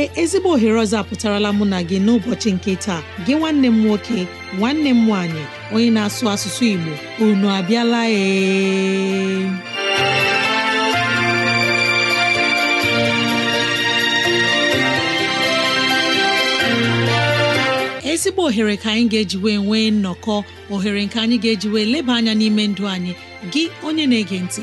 ee ezigbo ohere ọzọ apụtarala mụ na gị n'ụbọchị nke taa gị nwanne m nwoke nwanne m nwaanyị onye na-asụ asụsụ Igbo unu abịala ee ezigbo ohere ka anyị ga-ejiwe nwee nnọkọ ohere nke anyị ga-ejiwe leba anya n'ime ndụ anyị gị onye na-ege ntị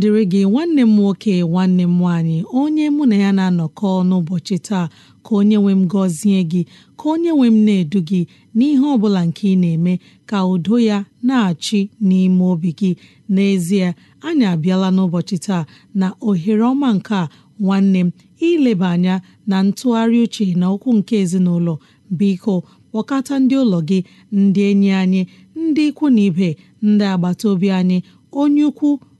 dịrị gị nwanne m nwoke nwanne m nwaanyị onye mụ na ya na-anọkọ n'ụbọchị taa ka onye nwe m gọzie gị ka onye nwe m na-edu gị n'ihe ọ bụla nke ị na-eme ka udo ya na-achị n'ime obi gị n'ezie anyị abịala n'ụbọchị taa na ohere ọma nke a nwanne m ileba anya na ntụgharị uche na okwu nke ezinụlọ biko kpọkọta ndị ụlọ gị ndị enyi anyị ndị ikwu na ibe ndị agbata obi anyị onye ukwu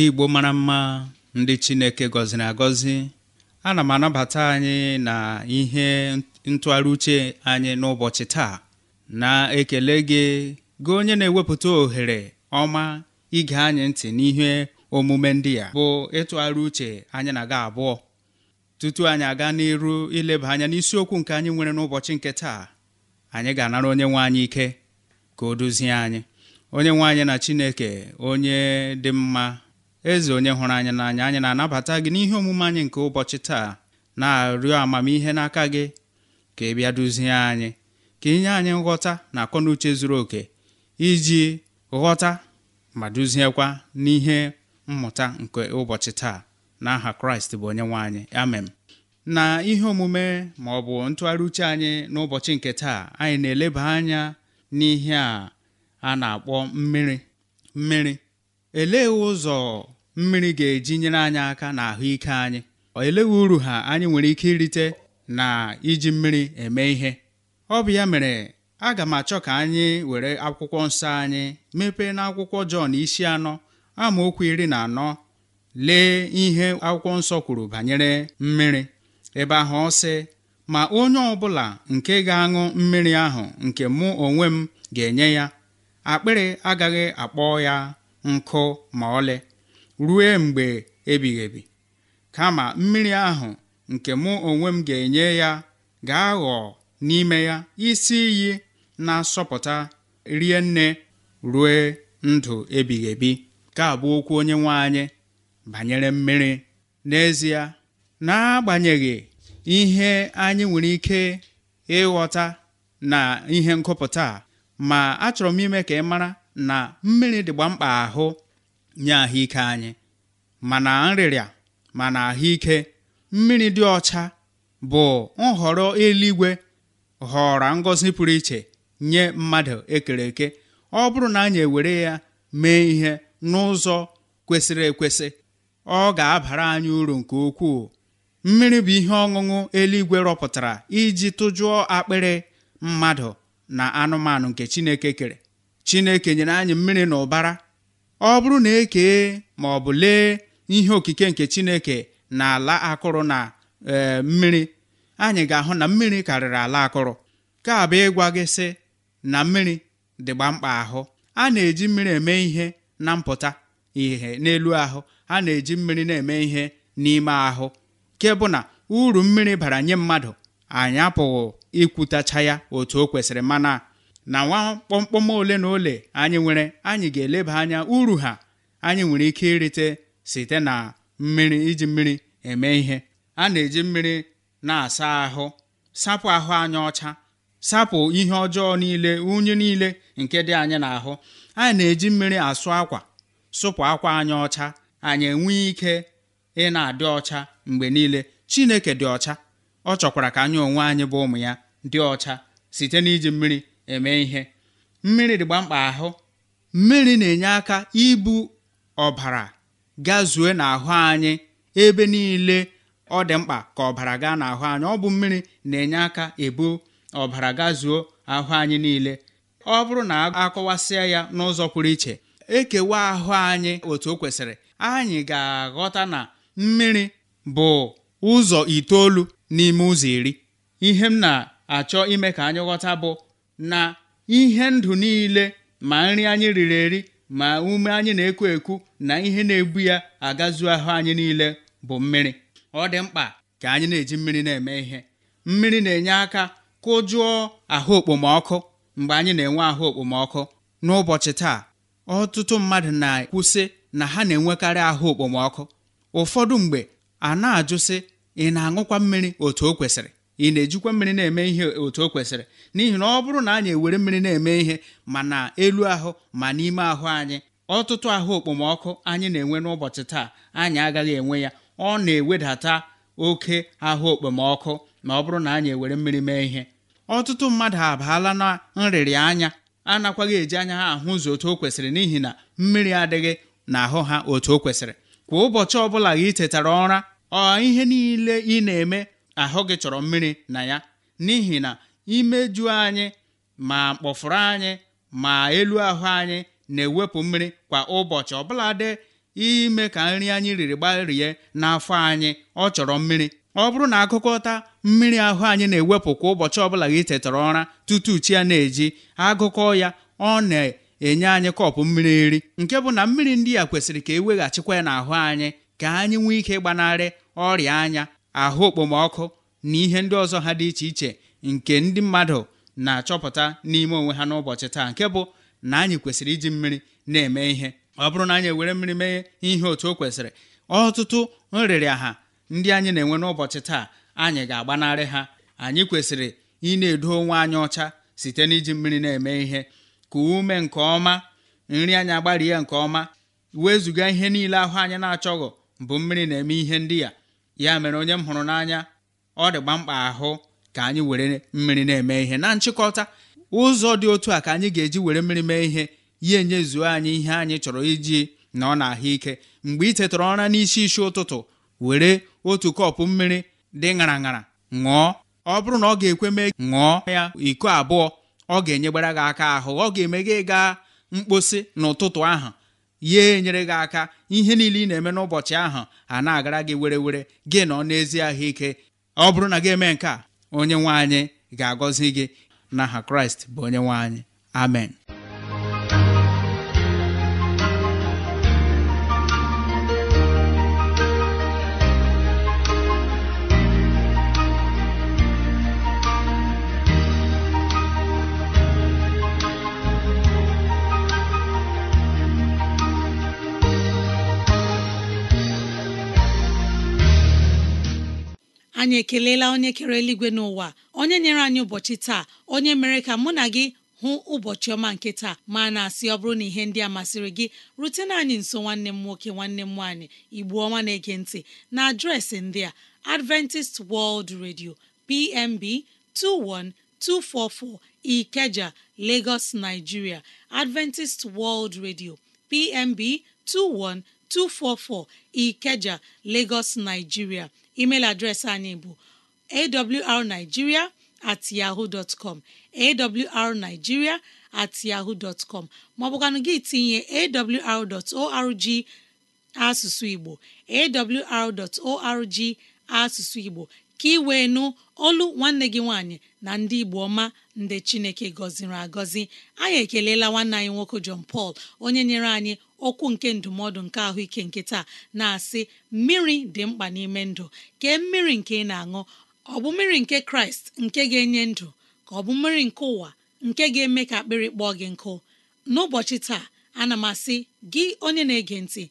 ndị Igbo mara mma ndị Chineke gọziri agọzi ana m anabata anyị na ihe ntụgharị uche anyị n'ụbọchị taa na-ekele gị gị onye na-ewepụta ohere ọma ige anyị ntị n'ihe omume ndị a bụ ịtụgharị uche anyị na-aga abụọ tutu anyị aga n'iru ileba anya n'isiokwu nke anyị nwere n'ụbọchị nke taa anyị ga-anara onye nwe anyị ike ka o duzie anyị onye nwe anyị na Chineke onye dị mma eze onye hụrụ anyị n'anya anyị na-anabata gị n'ihe omume anyị nke ụbọchị taa na-arịọ amamihe n'aka gị ka ị bịa duzie anyị ka inye anyị nghọta na akọnuche zuru oke iji ghọta ma duziekwa n'ihe mmụta nke ụbọchị taa n'aha kraịst bụ onye nwe amen na ihe omume ma ọ bụ ntụgharị uche anyị n'ụbọchị nke taa anyị na-eleba anya n'ihe a a na-akpọ mmiri mmiri Elee ụzọ mmiri ga-eji nyere anyị aka na ahụike anyị elee uru ha anyị nwere ike irite na iji mmiri eme ihe ọ bụ ya mere aga m achọ ka anyị were akwụkwọ nsọ anyị mepee na akwụkwọ Jọn isi anọ amaokwu iri na anọ lee ihe akwụkwọ nsọ kwuru banyere mmiri ebe ahụ ọ ma onye ọbụla nke ga-aṅụ mmiri ahụ nke mụ onwe m ga-enye ya akpịrị agaghị akpọ ya nkụ ma ọlị ruo mgbe ebighị kama mmiri ahụ nke mụ onwe m ga-enye ya ga-aghọ n'ime ya isi iyi na-asọpụta rie nne rue ndụ ebighị ka abụ okwu onye nwe anyị banyere mmiri n'ezie n'agbanyeghị ihe anyị nwere ike ịghọta na ihe nkụpụta ma achọrọ m ime ka ị mara na mmiri dịgba mkpa ahụ nye ahụike anyị mana nrịrịa mana ahụike mmiri dị ọcha bụ nhọrọ eluigwe họrọ ngọzi pụrụ iche nye mmadụ ekere eke ọ bụrụ na anyị ewere ya mee ihe n'ụzọ kwesịrị ekwesị ọ ga-abara anyị uru nke ukwuu mmiri bụ ihe ọṅụṅụ eluigwe rọpụtara iji tụjụọ akpịrị mmadụ na anụmanụ nke Chineke kere chineke nyere anyị mmiri na ụbara ọ bụrụ na ekee ma ọ bụ lee ihe okike nke chineke na ala akụrụ na e, mmiri anyị ga-ahụ na mmiri karịrị ala akụrụ ka abụ ịgwa gị sị na mmiri dịgba mkpa ahụ a na-eji mmiri eme ihe na mpụta ihe n'elu ahụ a na-eji mmiri na-eme ihe n'ime ahụ nke na uru mmiri bara nye mmadụ anyị apụghị ikwutacha ya otu o kwesịrị mana na nwa kpọmkpọm ole na ole anyị nwere anyị ga-eleba anya uru ha anyị nwere ike irite site na mmiri iji mmiri eme ihe a na-eji mmiri na-asa ahụ sapụ ahụ anyị ọcha sapụ ihe ọjọọ niile unyi niile nke dị anyị n'ahụ anyị na-eji mmiri asụ akwa sụpụ akwa anyị ọcha anyị enwee ike ị na-adị ọcha mgbe niile Chineke dị ọcha ọ chọkwara ka anyị onwe anyị bụ ụmụ ya dị ọcha site n'iji mmiri eme ihe mmiri dịgba mkpa ahụ mmiri na-enye aka ibu ọbara gazue n'ahụ anyị ebe niile ọ dị mkpa ka ọbara gaa n'ahụ anyị ọ bụ mmiri na-enye aka ebu ọbara gazuo ahụ anyị niile ọ bụrụ na akọwasịa ya n'ụzọ pụrụ iche ekewa ahụ anyị otu o kwesịrị anyị ga-aghọta na mmiri bụ ụzọ itoolu n'ime ụzọ iri ihe m na-achọ ime ka anyị ghọta bụ na ihe ndụ niile ma nri anyị riri eri ma ume anyị na-ekwu ekwu na ihe na-ebu ya agazu ahụ anyị niile bụ mmiri ọ dị mkpa ka anyị na-eji mmiri na-eme ihe mmiri na-enye aka kụjụọ ahụ okpomọkụ mgbe anyị na-enwe ahụ okpomọkụ n'ụbọchị taa ọtụtụ mmadụ na ekwusị na ha na-enwekarị ahụ okpomọkụ ụfọdụ mgbe a na-ajụsị ị na-aṅụkwa mmiri otu o kwesịrị ị na-ejikwa mmiri na-eme ihe otu o kwesịrị n'ihi na ọ bụrụ na anyị ewere mmiri na-eme ihe ma na elu ahụ ma n'ime ahụ anyị ọtụtụ ahụ okpomọkụ anyị na-enwe n'ụbọchị taa anyị agaghị enwe ya ọ na-ewedata oke ahụ okpomọkụ ma ọ bụrụ na anyị ewere mmiri mee ihe ọtụtụ mmadụ abaala na nrịrị anya anakwaghị eji anya ha ahụ ụzọ otu o kwesịrị n'ihi na mmiri adịghị n'ahụ ha otu o kwesịrị kwa ụbọchị ọbụla gị tetara ụra ọ ihe niile ị na-eme ahụ gị chọrọ mmiri na ya n'ihi na imejuo anyị ma mkpọfụrụ anyị ma elu ahụ anyị na-ewepụ mmiri kwa ụbọchị ọbụladị ime ka nri anyị riri gbarie n'afọ anyị ọ chọrọ mmiri ọ bụrụ na agụkọta mmiri ahụ anyị na-ewepụ kwa ụbọchị ọbụla gị tetara ụra tutu chi ya na-eji agụkọ ya ọ na-enye anyị kọpụ mmiri nri nke bụ na mmiri ndị a kwesịrị ka eweghachikwa ya n'ahụ anyị ka anyị nwee ike gbanarị ọrịa anya ahụ okpomọkụ na ihe ndị ọzọ ha dị iche iche nke ndị mmadụ na-achọpụta n'ime onwe ha n'ụbọchị taa nke bụ na anyị kwesịrị iji mmiri na-eme ihe ọ bụrụ na anyị ewere mmiri mee ihe otu o kwesịrị ọtụtụ nrịrịaha ndị anyị na-enwe n'ụbọchị taa anyị ga-agbanarị ha anyị kwesịrị ị na-edo onwe anyị ọcha site n'iji mmiri na-eme ihe ka ume nke ọma nri anyị agbarie nke ọma wezuga ihe niile ahụ anyị na achọghị bụ mmiri na-eme ihe ndị ya ya mere onye m hụrụ n'anya ọ dịgba mkpa ahụ ka anyị were mmiri na-eme ihe na nchịkọta ụzọ dị otu a ka anyị ga-eji were mmiri mee ihe ya enyezuo anyị ihe anyị chọrọ iji na ọ na-ahụ ike mgbe ị tetara ụra n'isi isi ụtụtụ were otu kọpụ mmiri dị ṅara ṅara ṅụọ ọ bụrụ na ọ ga-ekwe mee ṅụọ ya iko abụọ ọ ga-enyegbara gị aka ahụ ọ ga-eme gị gaa mkposi n'ụtụtụ ahụ ya enyere gị aka ihe niile ị na-eme n'ụbọchị ahụ a na-agara gị were were gị nọ n'ezi ahụike ọ bụrụ na gị eme nke a onye nwe anyị ga-agọzi gị na n'aha kraịst bụ onye nwe anyị amen anyị ekelela onye kere eluigwe n'ụwa onye nyere anyị ụbọchị taa onye mere ka mụ na gị hụ ụbọchị ọma nke taa ma na-asị ọ bụrụ na ihe ndị a masịrị gị rutena anyị nso nwanne m nwoke nwanne m nwaanyị igbu ọma na-ege ntị na adreesị ndị a Adventist World Radio PMB 21244 Ikeja Lagos Nigeria Adventist World Radio PMB 21244 Ikeja Lagos Nigeria email adreesị anyị bụ awrnigeria at yahoo dot com awrnigeria at maọbụkwanụ gị tinye awr asụsụ Igbo arorg asụsụ Igbo ka ị wee nụ olu nwanne gị nwaanyị na ndị Igbo ọma ndị Chineke gọziri agọzi anyị ekelela nwanne anyị nwoke John pal onye nyere anyị okwu nke ndụmọdụ nke ahụike nkịta na-asị mmiri dị mkpa n'ime ndụ kee mmiri nke ị na-aṅụ ọ bụ mmiri nke kraịst nke ga-enye ndụ ka ọ bụ mmiri nke ụwa nke ga-eme ka akpịrị kpọọ gị nkụ n'ụbọchị taa ana m asị gị onye na-ege ntị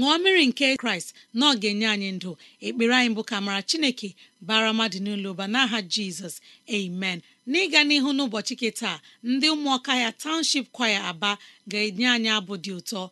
ṅụọ mmiri nke kraịst na ọ ga-enye anyị ndụ ekpere anyị bụ ka mara chineke bara mmadụ n'ụlọ ụba n'aha jizọs amen n'ịga n'ihu n'ụbọchị nke taa ndị ụmụọka ya township kwaya aba ga-enye anyị abụ dị ụtọ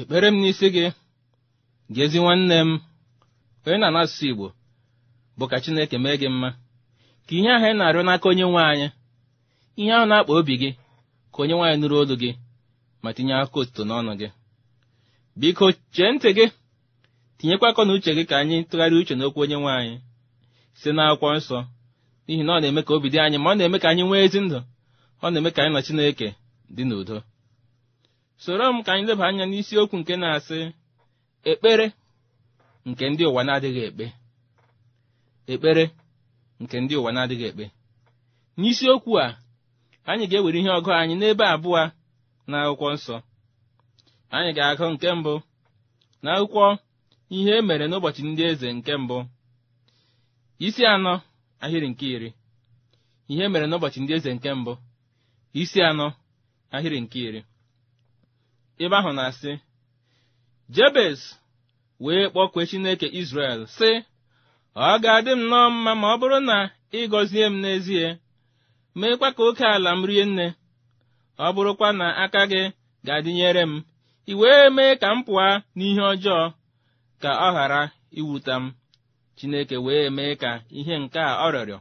ekpere m n'isi gị gị ezi nwanne m onye na-anasụsụ Igbo bụ ka Chineke mee gị mma ka ihe ahụ ị na-arịọ n'aka onye nwe anyị ihe ahụ na-akpa obi gị ka onye nwaanyị nụrụ olu gị ma tinye aka otuto n'ọnụ gị biko chee ntị gị tinyekwa akọ na uche gị ka anyị tụgharịa uche n'okwu onye nwe anyị site n'akwụkwọ nsọ n'ihi na ọ na-eme ka obi dị anyị ma ọ na-eme ka anyị nwee ezi ndụ ọ na-eme ka anyị na Chineke dị n'udo soro m ka anyị leba anya n'isiokwu nke na-asị ekpere nke ndị ụwa na-adịghị ekpe ekpere nke ndị ụwa na-adịghị ekpe n'isiokwu a anyị ga-ewere ihe ọgụ anyị n'ebe abụọ na akwụkwọ nsọ anyị ga-agụ nke mbụ na ihe e n'ụbọchị ndị eze nke mbụ isi anọ ahịrị nke iri ihe e mere n'ụbọchị ndị eze nke mbụ isi anọ ahịrị nke iri ebe ahụ na-asị jebes wee kpọkwee chineke izrel sị ọ ga-adị m nnọọ mma ma ọ bụrụ na ị gọzie m n'ezie meekwa ka oke ala m rie nne ọ bụrụkwa na aka gị ga-adịnyere m ị wee mee ka m pụọ n'ihe ọjọọ ka ọ ghara iwuta m chineke wee mee ka ihe nke a ọ rịọrọ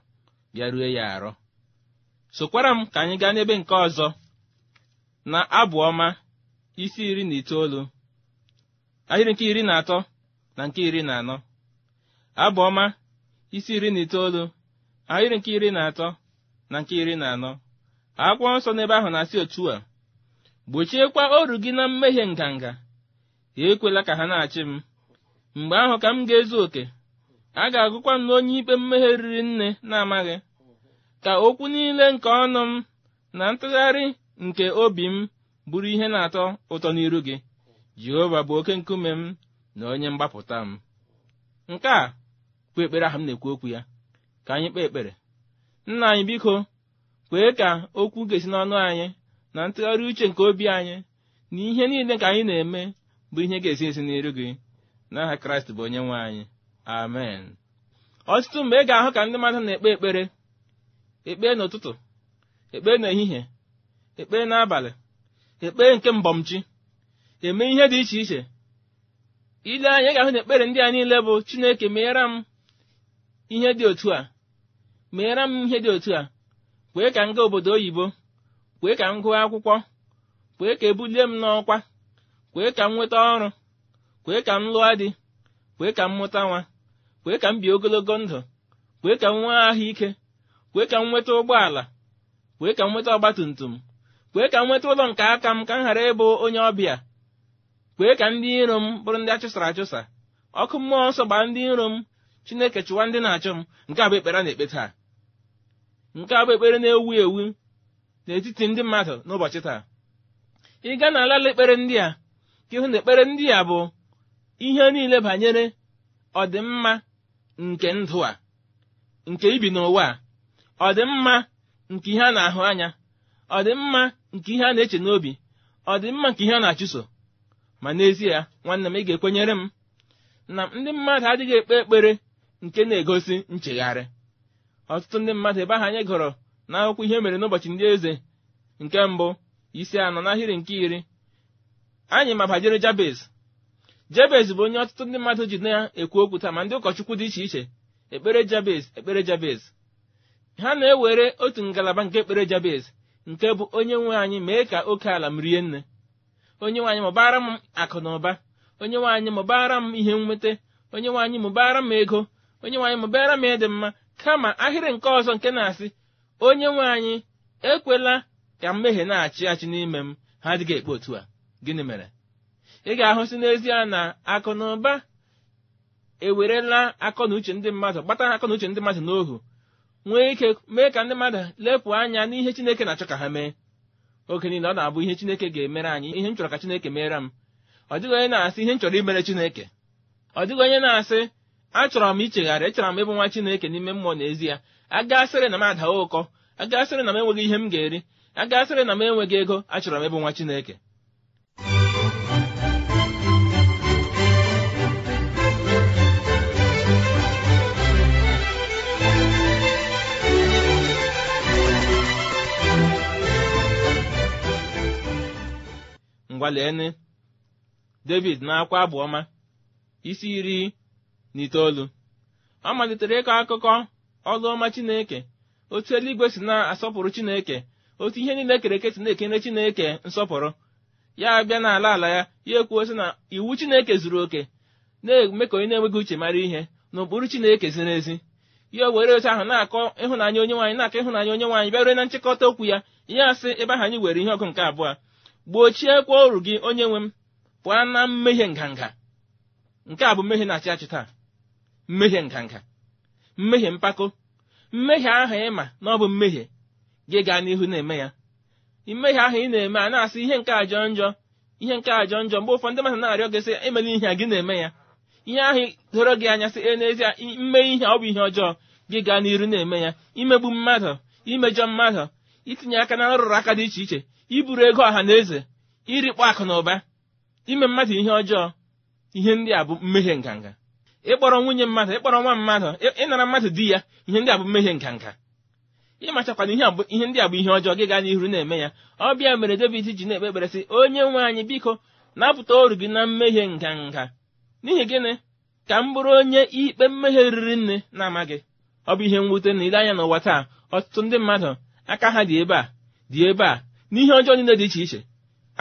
bịarue ya arọ sokwara m ka anyị gaa n'ebe nke ọzọ na abụ ọma isi iri na itoolu ahịrị nke iri na atọ na nke iri na anọ abụọma isi iri na itoolu ahịrị nke iri na atọ na nke iri na anọ akwụkwọ nsọ n'ebe ahụ na-asị otu a gbochiekwa oru gị na mmehie nganga ekwela ka ha na-achị m mgbe ahụ ka m ga-ezu oke a ga-agụkwa m n'onye ikpe mmehie riri nne na-amaghị ka okwu niile nke ọnụ m na ntụgharị nke obi m bụrụ ihe na-atọ ụtọ n'iru gị jehova bụ oke nkume m na onye mgbapụta m nke a bụ ekpere ahụ m na-ekwu okwu ya ka anyị kpee ekpere nna anyị biko kwee ka okwu ga-esi n'ọnụ anyị na ntụgharị uche nke obi anyị na ihe niile ka anyị na-eme bụ ihe ga-esi esi n'iru gị n'aha kraịst bụ onye nwe anyị amen ọtụtụ mgbe ị ga-ahụ ka ndị mmadụ na-ekpe ekpere ekpee n'ụtụtụ ekpee n'ehihie ekpee n'abalị ekpere nke mbọmchi eme ihe dị iche iche ile anya ga-ahụ na ekpere ndị a niile bụ chineke meere m ihe dị otu a meere m ihe dị otu a kwee ka m obodo oyibo kwee ka m gụọ akwụkwọ kwee ka ebulie m n'ọkwa kwee ka m nweta ọrụ kwee ka m lụọ dị kwee ka m mụta nwa kwee ka m bie ogologo ndụ kwee ka m nwee ahụ ike kwee ka m nweta ụgbọala kwee ka m nweta ọgbatumtum kwee ka m nweta ụlọ nke aka m ka m ghara ịbụ onye ọbịa kwee ka ndị iro m bụrụ ndị achụsara achụsa ọkụ mmụọ nsọ gbaa ndị iro m chineke chụwa ndị na-achụ m nke a bụ ekpere na-ekpe taa nke a ekpere na-ewu ewu n'etiti ndị mmadụ n'ụbọchị taa ị gaa n'ala ekpere ndị a ka ịhụ na ekpere ndị a bụ ihe niile banyere ọdịmma nke ndụ a nke ibi n'ụwa a ọdịmma nke ihe a na-ahụ anya ọdịmma nke ihe a na-eche n'obi ọ dị mma nke ihe a na-achụso ma n'ezie nwanne m ị ga-ekwenyere m na ndị mmadụ adịghị ekpe ekpere nke na-egosi nchegharị ọtụtụ ndị mmadụ ebe ahụ anyị gụrụ n'akwụkwọ ihe mere n'ụbọchị ndị eze nke mbụ isi anọ n'ahịrị nke iri anyị ma banyere jabez jabez bụ onye ọtụtụ ndị mmadụ ji na-ekwu okwu taa ma ndị ụkọchukwu dị iche iche ekpere jabez ekpere jabez ha na-ewere otu ngalaba nke ekpere jabez nke bụ onye nwe anyị mee ka oke ala m rie nne onye nwe anyị mụbara m akụ na ụba onye nwe anyị mụbara m ihe nweta onye nwe anyị mụbara m ego onye nwe anyị mụbara m ịdị mma kama ahịrị nke ọzọ nke na-asị onye nwe anyị ekwela ka mmehie na-achị achị n'ime m ha adịghị ekpe otu a gịnị mere ị ga-ahụsị n'ezie na akụ na ụba ewerela akọ na uche ndị mmadụ gbata akọ na uche ndị mmadụ n'ohu nwee ike mee ka ndị mmadụ lepụ anya n'ihe chineke na-achọ ka ha mee oge niile ọ na-abụ ihe chineke ga-emere anyị ihe m chọrọ ka chineke mere m ọ dịghị onye na-asị ihe m chọrọ imere chineke ọ dịghị onye na-asị achọrọ m ichegharị echọrọ m ịbụ nwa chineke n'ime mmụọ n'ezie agasịrị na m adawa ụkọ agasịrị na m enweghị ihe m ga-eri agasịrị na m enweghị ego achọrọ m ịbụ nwa chineke ngwalene david na-akwa abụ ọma isi iri na itoolu ọ malitere ịkọ akụkọ ọlụ ọma chineke otu eluigwe si na-asọpụrụ chineke otu ihe niile e kere eke si na-ekene chineke nsọpụrụ ya abịa n'ala ala ya ya ekwuo sị na iwu chineke zuru oke na-eme ka onye na-enweghị uche mara ihe na ụkpụrụ chineke ziri ezi ya were otu ahụ na-akọ ịhụnanya onye nwaanyị na-akọ ịhụnanya onye nwaanyị bịa rue na nchịkọta okwu ya ihe asị ebe ahụ anyị were ihe ọgụ nke abụọ gbochiekwa oru gị onye nwe m pụọ na mmehie nganga nke a bụ mmehie na-achị achị taa mmehie nganga mmehie mpako mmehie ahụ ma na ọ bụ mmehie gị gaa n'ihu na-eme ya mmehie ahụ ị na-eme a na-asị ihe nke ajọ njọ ihe nke ajọ njọ mgbe ụfọdụ mmadụ na-arịọ gị sị emela ihe a gị na-eme ya ihe ahụ doro gị anya sị e n'ezie mme ihe ọ bụ ihe ọjọọ gị gaa n'iru na-eme ya imegbu mmadụ imejọ mmadụ itinye aka na nrụrụ aka dị iche iche iburu ego ọha na eze irikpọ akụ na ụba ime mmadụ ihe ọjọọ ihe ndị a bụ mmehie nganga ịkpọrọ nwunye mmadụ ịkpọrọ nwa mmadụ ịnara mmadụ di ya ihe ndị a bụ mmehie nganga ịmachakwana ihe ndị a bụ ihe ọjọọ gị gaa n'ihu na-eme ya ọ bịa mere David ji na-ekpe ekpere sị onye nwe anyị biko napụta oru gị na mmehie nganga n'ihi gịnị ka m bụrụ onye ikpe mmehie riri nne na-amaghị ọ bụ ihe mwute na ile anya n'ụwa taa ọtụtụ ndị mmadụ aka ha dị ebe a dị ebe a n'ihe ọjọọ niile dị iche iche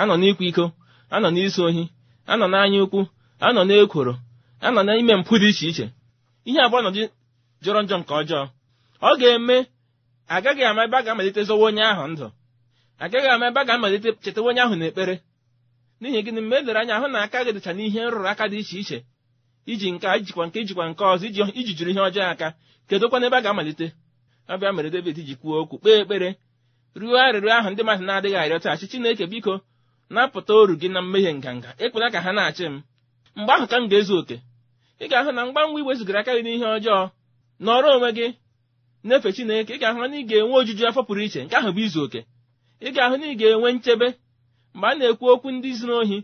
anọ n'ịkwa iko anọ n'isi ohi anọ n'anya ukwu anọ n'ekworo anọ n'ime mpụ dị iche iche ihe abụọ nọdụ jọrọ njọ nke ọjọọ ọ ga-eme agaghị ama ebe a ga-amalite zọwa onye ahụ ndụ agaghị ama ebe a ga-amalite chetawa onye ahụ n'ekpere n'ihi gịnị mgbe edere anya hụ na aka gị dịcha n'ihe nrụrụ aka dị iche iche iji nke ijikwa nke ijikwa nke ọzọ iji jụrụ ihe ọjọọ aka kedụkwana ebe a ga-amalite ọ mere David ji kwuo okwu kpee ekpere ruo arịrịọ ahụ ndị mmadụ na-adịghị arịọ taachi Chineke biko napụta oru gị na mmehie nganga ịkpụta ka ha na-achị m mgbe ahụ ka m ga-ezu oke ị ga-ahụ na mgbanwe iwezugara aka gị n'ihe ọjọọ nọrọ onwe gị na-efe Chineke ị ga-ahụ na ị ga-enwe ojuju afọ pụrụ iche nke ahụ bụ izu oke ị ga-ahụ na ị ga-enwe nchebe mgbe a na-ekwu okwu ndị zuru ohi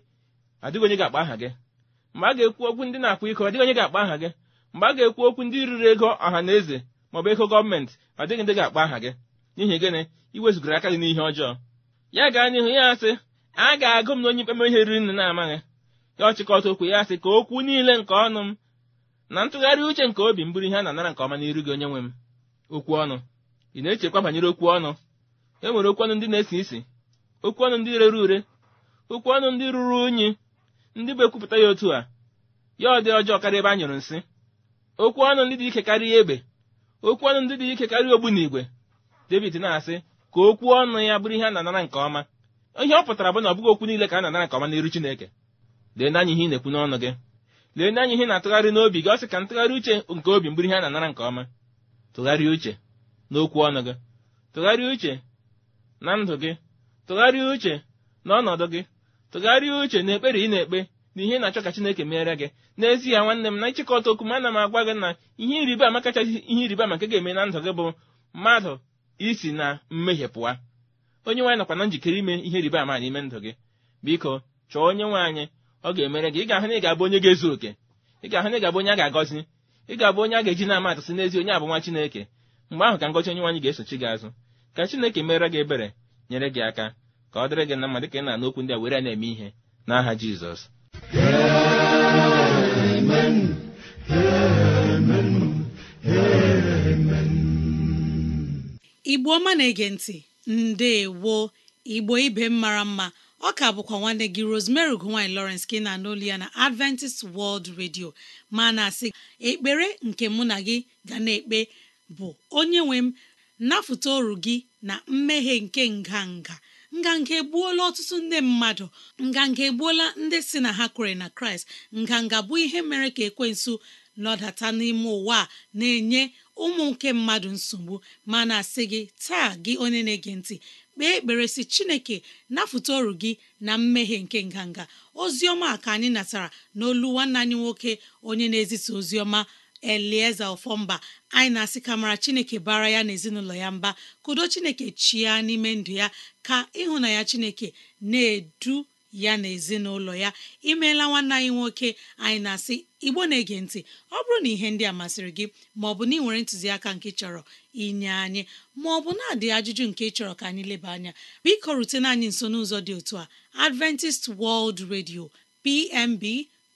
adịghị onye ga-akpa aha gị mgbe a ga-ekwu okwu ndị na-akwa iko adịghị onye ga-akpa aha gị mgbe a ga-ekwu okwu ndị riri ego ọha na eze maọbụ ego gọọmentị adịghị ndị ga-akpa aha gị n'ihi gịnị iwezụgara aka gị n'ihe ọjọọ ya gaa n'ihu ya asị a ga-agụ m na onye ikpe ihe riri nne na-amaghị ya ọchịkọta okwu ya asị ka okwu niile nke ọnụ m na ntụgharị uche nke obi m bụrụ ihe a na-anara nke ọma n'iru gị onye nwe m okwu ọnụ ị na-echekwa banyere okwu ọnụ e nwere okwu ọnụ ndị na-esi isi okwu ọnụ ndị rere ure okwu ọnụ ndị ruru unyi ndị bụ ekwupụta ya otu a ya ọ dị ọjọọ karịa ebe a nyụrụ nsị okwu ọnụ ndị dị ike karịa egbe okwu ọnụ ndị dị ike karịa igwe david na-asị ka okwu ọnụ ya bụrụ ihe a na-anara nke ọma ihe ọ pụtara bụ na ọ bụghị okwu niile ka a na-anara nke ọma n'iru chineke lee n'anya ihe ị na-ekwu n'ọnụ gị lee n'anya ihe na-atụgharị n'obi gị ọ sị ka ntụgharị uche nke obi mbụrụ ihe a na-anara nke ọma tụgharịa uche n'okwu ọnụ gị tụgharịa uche na ndụ gị tụgharịa uche na ọnọdụ gị tụgharịa uche na ekpere ị na-ekpe na ihe na-achọ ka chineke meere gị n'ezie nwanne m na nchịkọta okwu m ana m agwa gị na ihe ịrịba ama kachasị ihe ịrịba ama nke ga-eme na ndụ gị bụ mmadụ isi na mmehie pụwa onye nwaanyị nakwa na njikere ime ihe riba ama n'ime ndụ gị biko chọọ onye nwaanyị ọ ga-emere gị ị ga-ahụ na ị ga-abụ onye ga-ezu oke ị ga-ahụ na ị ga-abụ onye a ga-agọzi ị ga-abụ onye a ga-eji na atụsị n'ezi onye abụ nwa Chineke mgbe ahụ ka ngọzi onye nwaanyị ga-esochi gị azụ ka Chineke mere gị ebere nyere gị aka ka ọ dịrị gị na mma dịka ị na-ana okwu ndị a were na-eme ihe n'aha Jizọs Amen. Amen. Amen. igbo ọma na-ege ntị ndewo igbo ibe mara mma ọ ka bụkwa nwanne gị Rosemary gowany Lawrence ka ị na-anụ ya na Adventist World Radio ma na-asị ekpere nke mụ na gị ga na-ekpe bụ onye nwe m nafụta oru gị na mmehie nke nganga nganga egbuola ọtụtụ ndị mmadụ nganga egbuola ndị si na ha kwere na Kraịst nganga bụ ihe mere ka ekwensụ nọdata n'ime ụwa na-enye ụmụ nke mmadụ nsogbu ma na-asị gị taa gị onye na-ege ntị kpee ekpere si chineke nafụta ọrụ gị na mmehie nke nganga ozi ọma ka anyị natara n'olu nwanne anyị nwoke onye na-ezisa ozi ọma elieze ọfọmba anyị na-asị kamara chineke bara ya na ezinụlọ ya mba kudo chineke chia n'ime ndụ ya ka ịhụnanya chineke na-edu ya na ezinụlọ ya imeela nwanne anyị nwoke anyị na-asị igbo na-ege ntị ọ bụrụ na ihe ndị a masịrị gị ma ọ bụ na ị nwere ntụziaka nke chọrọ inye anyị ma ọ bụ na-adị ajụjụ nke chọrọ ka anyị leba anya biko rutena anyị nso n'ụzọ dị otu a Adventist World Radio PMB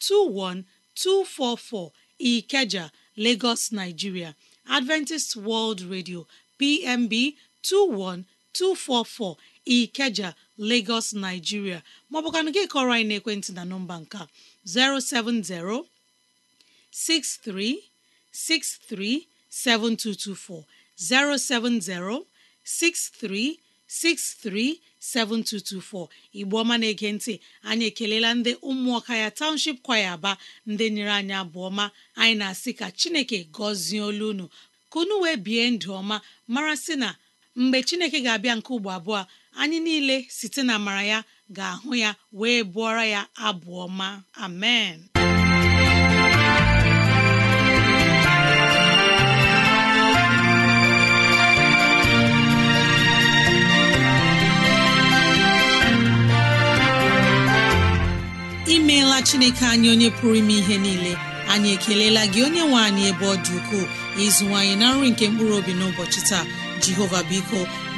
21244 Ikeja Lagos Nigeria Adventist World Radio PMB 21244 Ikeja Lagos Nigeria maọbụkwanụ gị kọrọ anyị n'ekwentị na nọmba nka 070 6363 7224 igbo ọma na-ege ntị anyị ekelela ndị ụmụọka ya township kwaya aba ndị nyere anyị abụọma anyị na-asị ka chineke gọzie olu unu ka unu wee bie ndụ ọma mara sị na mgbe chineke ga-abịa nke ugbo abụọ anyị niile site na amara ya ga-ahụ ya wee bụọra ya abụọ ọma amen imeela chineke anyị onye pụrụ ime ihe niile anyị ekelela gị onye nwe anyị ebe ọ dị ukwuu ịzụwanyị na nri nke mkpụrụ obi n'ụbọchị taa jehova biko